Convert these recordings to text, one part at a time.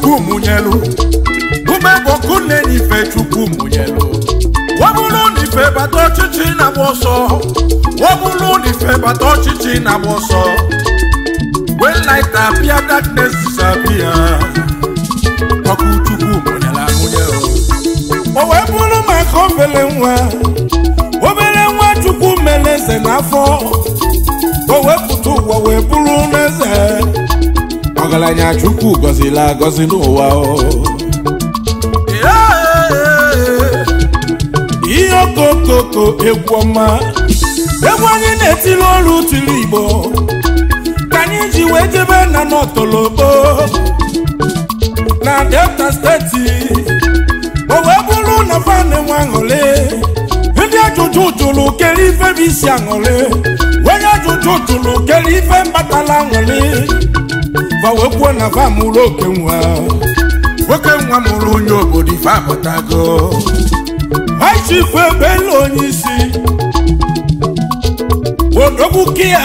chukwu mụnyelu ume bụ ọkụ nife chukwu mụnyelu wọbụrụ n'ife bata ọchịchị na-agba ọsọ n'ife bata ọchịchị na-agba Wee when light appear darkness disappear ọkụ chukwu mụnyela amụnye o wee bụrụ maka obere nwa obere nwa chukwu mere ze n'afọ o na chukwu gọzila agọzi n'ụwa ihe okokoko egwu ọma egwu anyị na-etili ọrụ tiri igbo ka anyị ji wee jebe na n'ọtọlọkpo na delta steeti o wee bụrụ na fan nwe aṅụrị ndị ajụjụ jụrụ kere ife bụ isi aṅụrị onye ajụjụ jụrụ kere ife mbatala aṅụrị ifa wee na fa mụrụ oke nwa oke nwa mụrụ onye obodo ife apụtago aichifu ebelu onye isi odogbukiya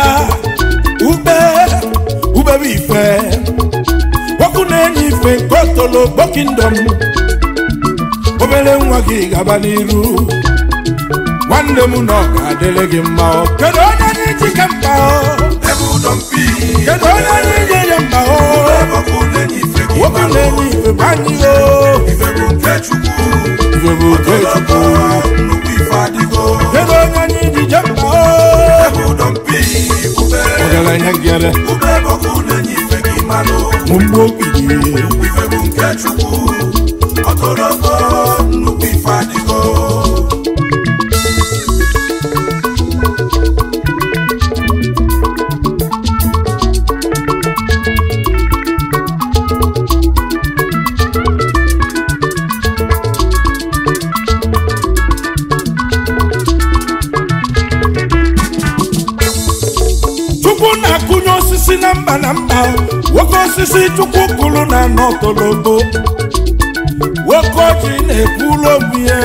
ube ubebe ife kpoku na-enye ife nke otolo kpokindom obere nwa gị gaba n'iru nwanne m na ọ ga-adịrị gị mma kedu onye na-eji ka bịara ihe ngere nnukwu okpi dị na-akụnye osisi na mba na mba nwoke osisi chukwu kụrụ na n'ọtoloto nwoke oji na-ekwuru obi ya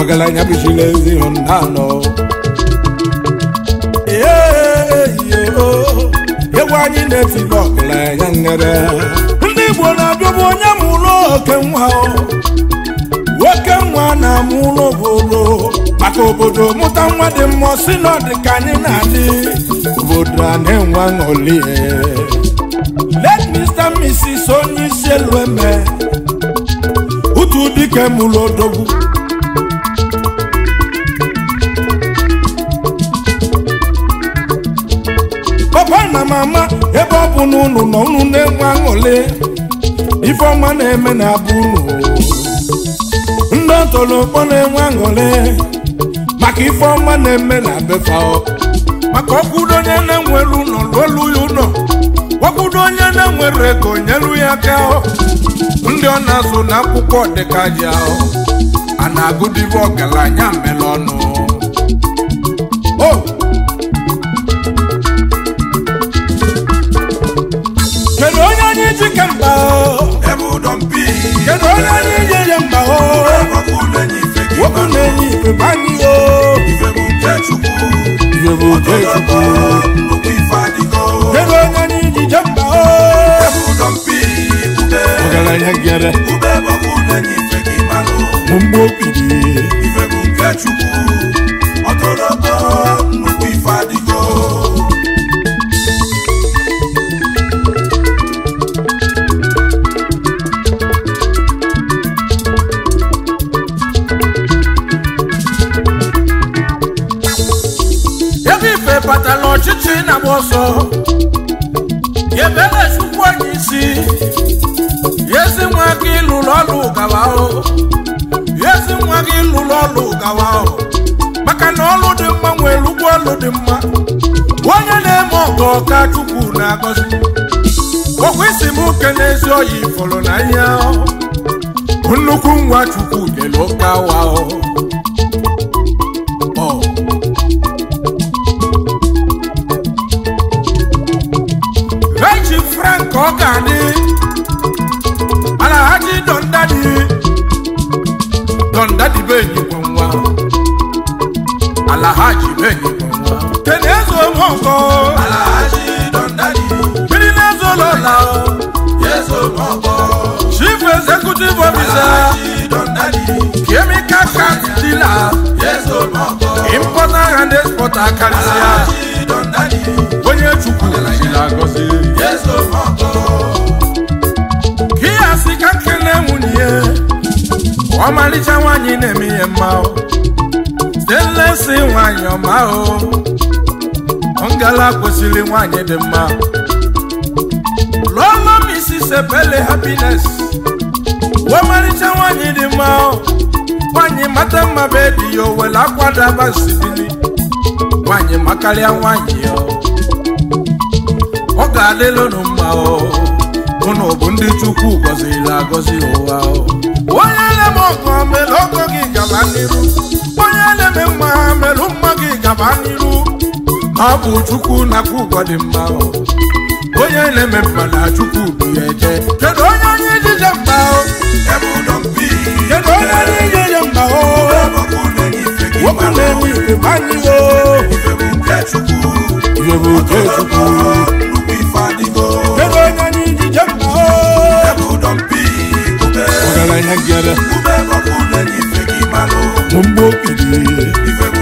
ọgaranya bụchila ezi anọ egwu anyị na-etiri ọgaranya ngere ndị Igbo na-abịabu onye mụrụ oke nwa oke nwa na-amụ obodo maka obodo mụta nwa dị mmụọ si na dị ka anyị na-adị obodo a na-enwe ṅụlie let Mr. Mrs. onye isi elu eme utu dike mụrụ odogwu papa na mama ebe ọ bụ na unu na-enwe aṅụli ifeọma na-eme na abụ unu tolukpọ na-enwe maka ife ọma na-eme na befa maka ọkwụdo onye na-enwere ụlọ lụọlụ ya ụlọ ọkwụdo onye na-enwere ego nyelu ya aka ndị ọ na-azụ na akwụkwọ dịkaji ahụ a na agụdịbụ ọgaranya mere kedu onye anyị ji kedu onye anyị nwoke na-enye ife banyị o ife bụ nke chukwu ọsọ yebelechukwu onye isi yezi nwa gị ịlụrụ ọlụ gawa o yezi nwa gị ịlụrụ ọlụ gawa o maka na ọlụ dị mma nwere ụgwọ ọlụ dị mma onye na-eme ọgọ ọka chukwu na-agọzi okwu isi m na ezi oyi fọrọ na ihe nnukwu nwa chukwu nyere ụka wa o ọka dị alahaji dọndadị dọndadị benyi bụ nwa alahaji benyi bụ nwa tenezo mọkọ alahaji dọndadị mmiri na-ezo lọla yezo mọkọ chief executive officer kemi kaka dealer yezo mọkọ importer and exporter karịsịa ọmalịcha nwaanyị na-eme ihe mma si nwaanyị ọma o ngala kwesịrị nwaanyị dị mma lụọla sepele happiness ọmalịcha nwaanyị dị mma nwaanyị mata mma be dị ya owele akwadabasibili nwaanyị makarịa nwaanyị ya ọ ga-adịlụ mma unu bụ ndị chukwu gọziri agọzi ụwa onye na-eme ọgọ mere ọgọ gị gaba n'iru onye na-eme mma mere mma gị gaba n'iru ọ bụ chukwu na-akwụ ụgwọ dị mma onye na-eme mma na chukwu bụ ya eje kedu onye anyị ejije mma kedu onye anyị ejije mma nwoke na-enwe ife manyị ife bụ nke chukwu bụ mgbo kpiri